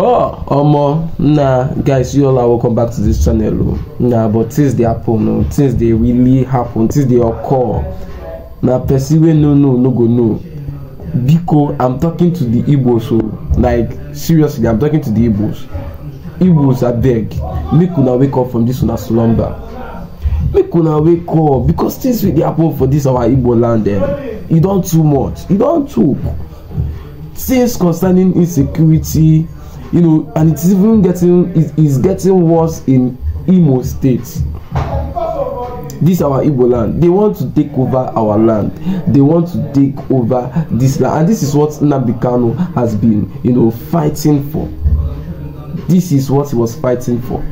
Oh, Omo, nah, guys, you all are welcome back to this channel. Oh. Nah, but things they happen, oh. things they really happen, things they occur. Now, nah, person no, no, no go no. Biko, I'm talking to the Igbos, so oh. like seriously, I'm talking to the Igbos. Igbos, abeg beg, make una wake up from this una slumber. Make una wake up because things dey happen for this our Igbo land. Eh? E don too much. E don too. things concerning insecurity you know and it's even getting is is getting worse in imo state this our igbo land they want to take over our land they want to take over this land and this is what nnamdi kanu has been you know fighting for this is what he was fighting for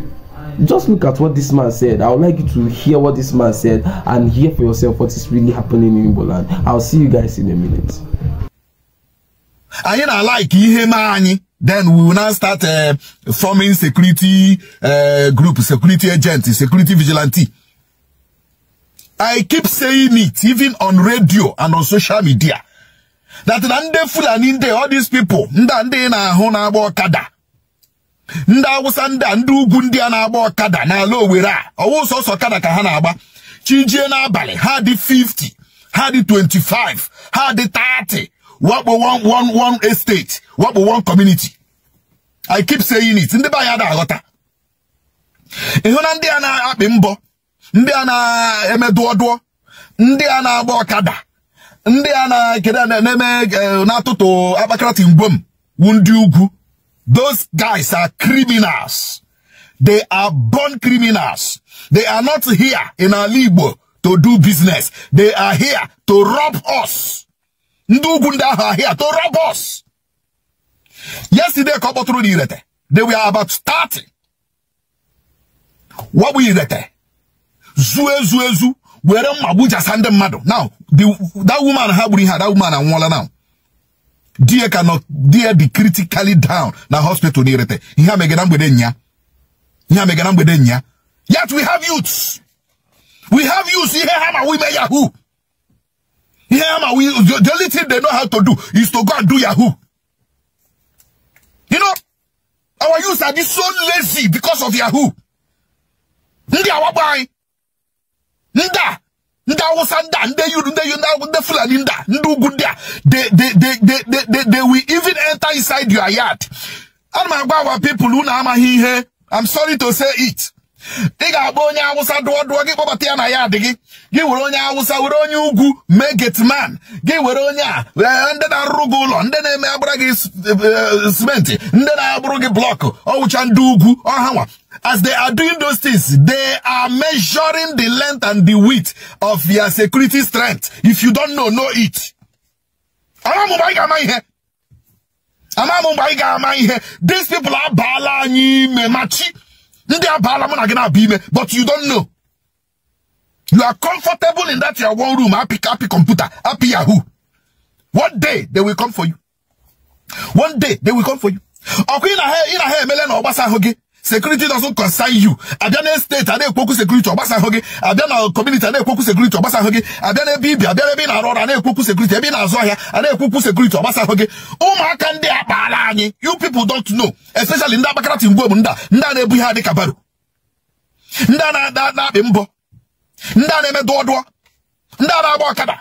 just look at what this man said i would like you to hear what this man said and hear for yourself what is really happening in igbo land i'll see you guys in a minute. anyị na-alike ihe ma anyị then we will now start eh, forming security eh, group security agent security vigilante I keep saying it even on radio and on social media that na ndị Fulani ndị all these people ndị a ndị na-ahụ na-agba ọkada ndị Awụsa ndị a ndị ugwu ndị a na-agba ọkada n'ala Owere a ọwụ sọsọ ọkada ka ha na-agba chijie n'abalị ha dị 50 ha dị 25 ha dị 30 What pè one one one estate What pè one community i keep saying it ndị be anyị ada aghọta ndị a na-akpị mbọ ndị a na-eme dụọdụọ ndị a na-agba ọkada ndị a na-ekede na-eme e, na-atụtụ akpakarati wu ndị ugwu those guys are criminals they are born criminals they are not here in ala Igbo to do business they are here to rob us ndị ugwu ndị ahụ ahịa to rob us yesterday ka ọ kpọtụrụ na irete they were about 30 wabụ irete zuo ezu ezu were mma gbujasa ndị mmadụ now that woman ha gburu ihe that woman anwụọla now die ka nọ die dị critically down na hospital na irete ihe a megara mgbede nya ihe a megara mgbede nya yet we have youths we have youths ihe ha na wime yahoo Hema, we, the only thing they know how to do is to go and do Yahoo. You know, our youth are just so lazy because of Yahoo. Ndi awabai. Nda. Nda wasanda. Nde you, nde you, nde fulani nda. Ndu gundia. They, they, they, they, they, they, they will even enter inside your yard. And my people, who na I'm sorry to say it. ị ga-akpọ onye awụsa dụọ dụọ gị kpọbata ya na ya adị gị gị were onye awụsa were onye ugwu mee getman gị were onye a e, ndị na-arụrụ gị ụlọ ndị na-eme agbara gị simenti e, e, ndị na-abụrụ gị blọkụ ọwụcha ndị ugwu ọhanwa as they are doing those things, they are measuring the length and the width of your security strength. If you don't know, know it. These people are anyị machi. ndị abaala mụ na gị na-abịa ime but you don't know you are comfortable in that your one room happy happy computer happy yahoo one day they will come for you one day they will come for you ọkwa ị na ha emele na ọ ahụ gị security doesn't concern you abịa na steeti a na-ekwu okwu sekuriti ọgbasa ahụ gị abịa na kọmuniti a na-ekwu okwu sekuriti ọgbasa ahụ gị abịa na ebe ibi na ebe na-arụ ọrụ a na-ekwu okwu sekuriti ebe ị na-azụ ahịa na-ekwu okwu sekuriti ọgbasa ahụ gị ụmụaka ndị a anyị you people don't know especially ndị abakarati mgbe ndị a ndị a na-ebu ihe adịka baro ndị a na-akpị mbọ ndị a na-eme dụọdụọ ndị a na-agba ọkada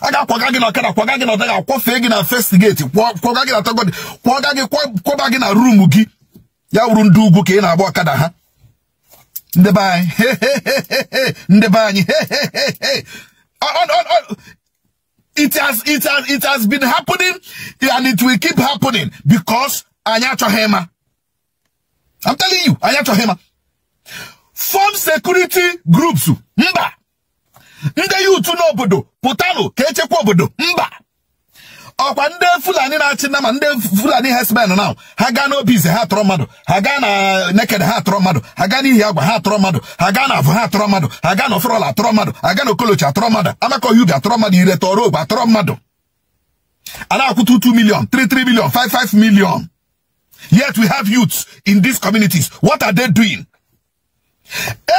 aga ga-akwaga gị na ọkada kwaga gị na ọdaga akwọfee gị na festi geti kwaga gị na tagodi kwaga gị kwaba gị na ruumu gị ya wuru ndị ugwu ka ị na-agba ọkada ha ndị be anyị ndị be anyị it has it has it has been happening and it will keep happening because anyị achọghị ịma I'm telling you anyị achọghị ịma form security groups mba ndị yutu n'obodo pụtanụ ka echekwa obodo mba ọkwa ndị fulani na-achị nama ndị fulani herdsmen na ha gaa na ize ha tọrọ mmadụ ha gaa na neked ha tọrọ mmadụ ha gaa n'ihi agwa ha tọrọ mmadụ ha gaa na avụ ha tọrọ mmadụ ha gaa na oforola atọrọ mmadụ ha gaa na okolochi atọrọ mmadụ amakọghị ubi atọrọ mmadụ ire tọrọ ogbe atọrọ mmadụ a na-akwụta 2 million 33 million 55 million yet we have youths in these communities what are they doing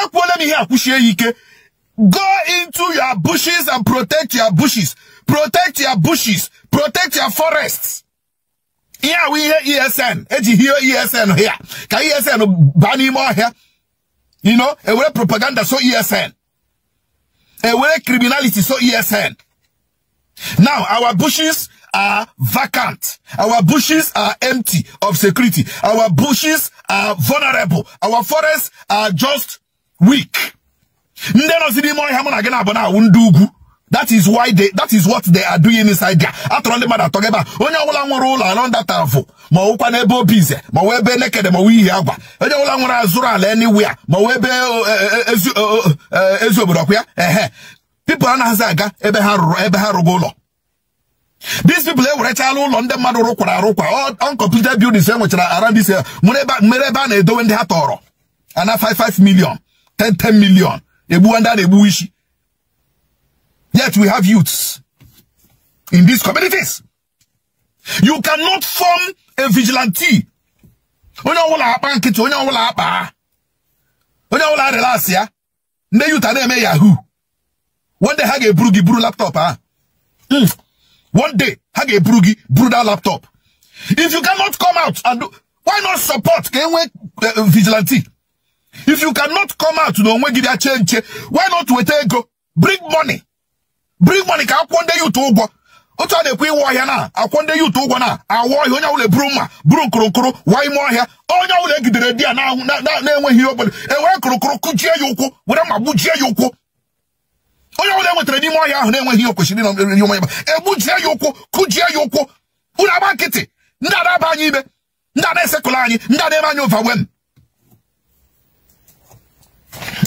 ekwuola m ihe akwụchie ya ike go into your bushes and protect your bushes protect your bushes protect your forests. Yeah, we hear ESN eji here ESN here Can ESN baa more here? you know way propaganda so ESN way criminality so ESN now our bushes are vacant our bushes are empty of security our bushes are vulnerable our forests are just weak that is why they that is what they are doing inside there atụrụ ndị mmadụ atọghị ebe a onye ọbụla nwere ụlọ alọ ndata vụ ma ọwụkwa n'ebe obi ize ma ọwụ ebe nekede ma ọwụ ihe agwa onye ọbụla nwere azụrụ ala anywhere ma ọwụ ebe e, e, e, ezi obodo ọkụ ya ehe pipụl anaghịzi aga ebe ha rụrụ ebe ha rụgo ụlọ these people ewerechala ụlọ ndị mmadụ rụkwara arụkwa uncompleted buildings enwechara around this mere ebe a na-edowe ndị ha tọrọ ana 55 million 10 10 million egbuwa ndị a na-egbuwa isi Yet we have youths in these communities. You cannot form a vigilante. Onye ọwụla akpa nkịtị, onye ọwụla akpa onye ọwụla relax ya ndị yuta na-eme yahoo one day ha ga-eburu gị buru laptop ha hmm. one day ha ga-eburu gị buru that laptop if you cannot come out and why not support ka enwe eh, eh, vigilante if you cannot come out na onwe gị bịa chee nche why not weta ego bring money bring money ka akwụkwọ ndị yutu ụgwọ otu a na-ekwe iwe ọhịa na akwọ ndị yutu ụgwọ na awa ọhịa onye ọbụla buru mma buru nkụrụnkụrụ waa ime ọhịa onye ọbụla egidere di ya na-enweghị ihe obodo ewere e nkụrụnkụrụ kụjie ya ụkwụ were mma gbujie ya ụkwụ onye ọbụla enwetara n'ime ọhịa ahụ na-enweghị ihe kwesịrị nri onye ba egbujie ya ụkwụ kụjie ya ụkwụ unu agba nkịtị ndị ada aba anyị ime ndị ada esekụla anyị ndị ada eme anyị ụva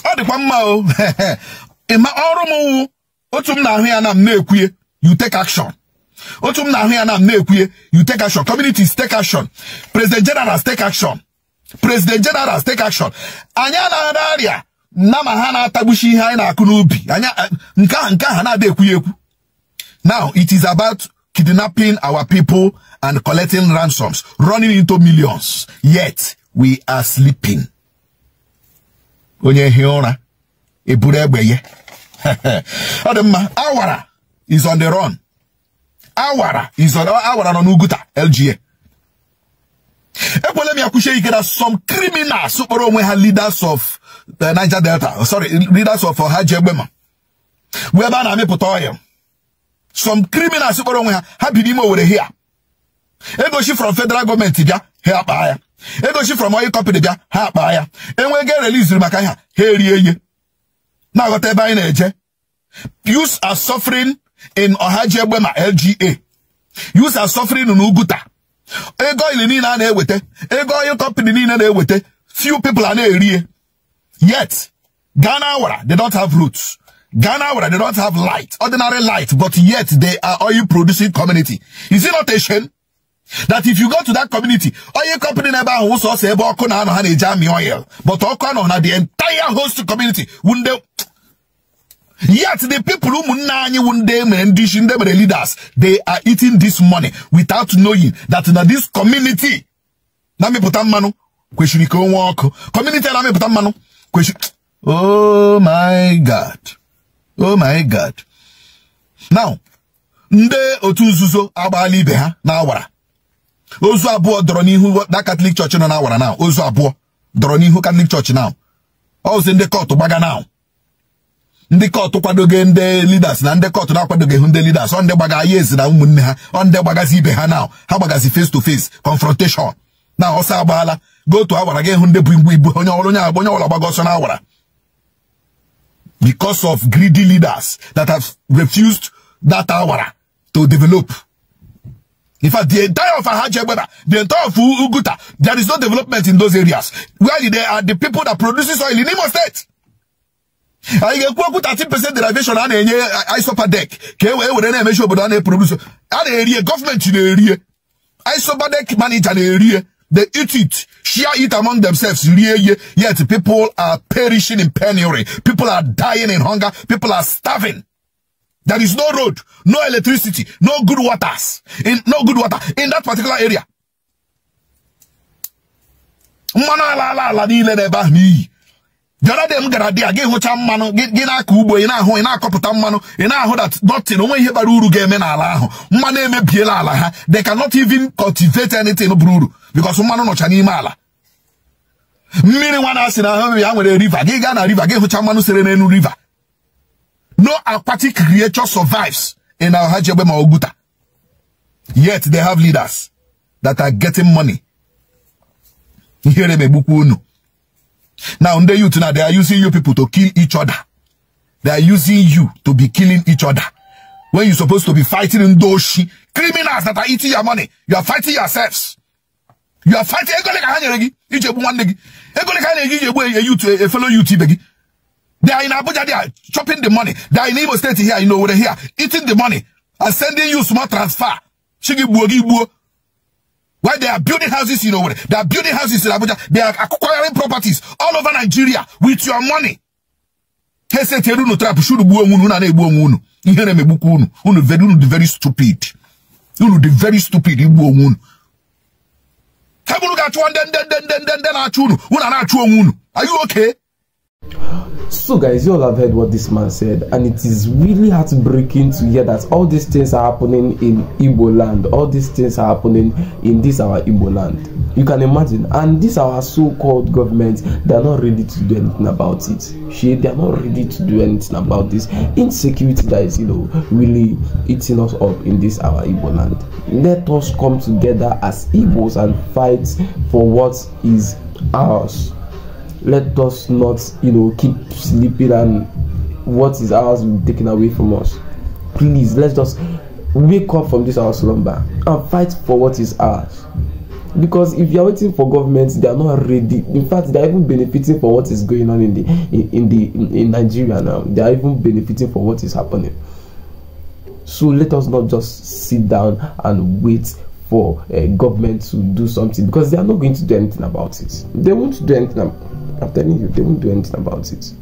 ọ dịkwa mma ọrụ m wụ otu m na-ahụ ya na m na-ekwuye you take action otu m na-ahụ ya na m na-ekwuye you take action communities take action president generals take action president generals take action anyị arịa na ma ha na-atagbuchi ihe anyị na-akụ n'ubi eh, nke ahụ nke ahụ na adị ekwughị ekwu now it is about kidnapping our people and collecting ransoms running into millions yet we are sleeping onye hie ụra eburu egbe ya ọ dị mma awara is on the run awara is on awara nọ n'uguta LGA ekwela m ya kwuchie ike na some criminals kpọrọ onwe ha leaders of the Niger Delta sorry leaders of ha ji egbe ma bụ ebe a na-amịpụta oil some criminals kpọrọ onwe ha ha bi n'ime owere hia egochi from federal gọọmenti bịa ha akpaa ya egochi from oil company bịa ha akpaa ya enwego e release maka ha ha erie ihe Now aghọta ebe anyị na-eje youths are suffering in Ohajiegbe ma LGA youths are suffering in Uguta ego ili niile a na ego oil company niile na-eweta few people are ne rie. yet Ghana wara they don't have roots Ghana wara they don't have light ordinary light but yet they are oil producing community is it not a shame that if you go to that community oil company na ebe ahụ ụsọ ọsọ ebe ọkụ na oil but ọkụ anọ na the entire host community wunde Yet the people who munanyi wundem and the leaders, they are eating this money without knowing that in this community, na mi putam manu, question iko walk, community na mi putam manu, question, oh my God, oh my God. Now, nde otu nzuzo agbala na awara. Ozu abụọ dọrọ n'ihu that Catholic Church na awara now, ozu abụọ dọrọ n'ihu Catholic Church now. Ọ sị ndị kọtụ gbaga now ndị kọtụ kwadoghị ndị leaders na ndị kọtụ na-akwadoghị ndị leaders ọ ndị gbaga ya ezi na ụmụnne ha ọ ndị gbagazi ibe ha na ha gbagazi face to face confrontation na ọsọ agbaala gotu awara gị hụ ndị bụ igbu ibu onye ọrụ onye agba onye ọbụla gbaga ọsọ na awara because of greedy leaders that have refused that awara to develop in fact the entire of ahajiagbara the entire of uguta there is no development in those areas where they are the people that produces oil in Imo State I ga ga-ekwu okwu 30% derivation a na-enye isopa dek We e wee were na-emechi obodo a na area. Government in erie area. I na-erie isopa dek manager area. they eat it share it among themselves yet people are perishing in penury people are dying in hunger people are starving there is no road no electricity no good waters in no good water in that particular area mmanụ ala ala ala the other m gara dị a gị hụcha mmanụ gị na-akọ ugbo ị na-ahụ ị na-akọpụta mmanụ ị na-ahụ that nothing onwe ihe bara uru ga-eme n'ala ahụ mmanụ emebiela ala ha they cannot even cultivate anything bụrụ uru because mmanụ nọcha n'ime ala mmiri nwa na-asị na ahụ ya nwere river gị gaa na riva gị hụcha mmanụ sere n'elu riva. no aquatic creature survives in Ahajebe ma Oguta yet they have leaders that are getting money ihere megbukwa unu Now, the youth now, they are using you people to kill each other. They are using you to be killing each other. When you're supposed to be fighting in Doshi, criminals that are eating your money, you are fighting yourselves. You are fighting. E e they are in Abuja, they are chopping the money. They are in Igbo State here, you know, over here, eating the money and sending you small transfer. Why they are building houses in Owerri, they are building houses in Abuja, they are acquiring properties all over Nigeria with your money. He said, Heseteru no trap should bu unu na egbu unu. Ihe na megbuku unu. Unu very unu very stupid. Unu the very stupid igbu unu. Hebulu ga chu then, then, then, then ndị ndị na-achụ unu. Unu na-achụ onwe unu. Are you okay? So, guys, you all have heard what this man said, and it is really heartbreaking to hear that all these things are happening in Igbo land. All these things are happening in this our Igbo land. You can imagine, and these our so-called governments, they are not ready to do anything about it. She, they are not ready to do anything about this insecurity that is, you know, really eating us up in this our Igbo land. Let us come together as Igbos and fight for what is ours let us not, you know, keep sleeping and what is ours will be taken away from us. Please, let us wake up from this our slumber and fight for what is ours. Because if you are waiting for government, they are not ready. In fact, they are even benefiting for what is going on in the in, in the in, in Nigeria now. They are even benefiting for what is happening. So let us not just sit down and wait for a eh, government to do something because they are not going to do anything about it. They won't do anything. I'm telling you, they won't do anything about it.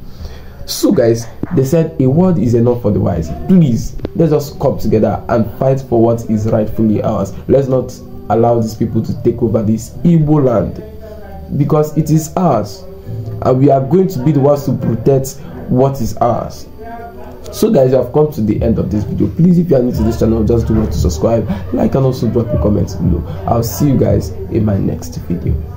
So, guys, they said a word is enough for the wise. Please, let's just come together and fight for what is rightfully ours. Let's not allow these people to take over this evil land because it is ours, and we are going to be the ones to protect what is ours so guys you have come to the end of this video please if you are new to this channel just do not to subscribe like and also drop a comment below i'll see you guys in my next video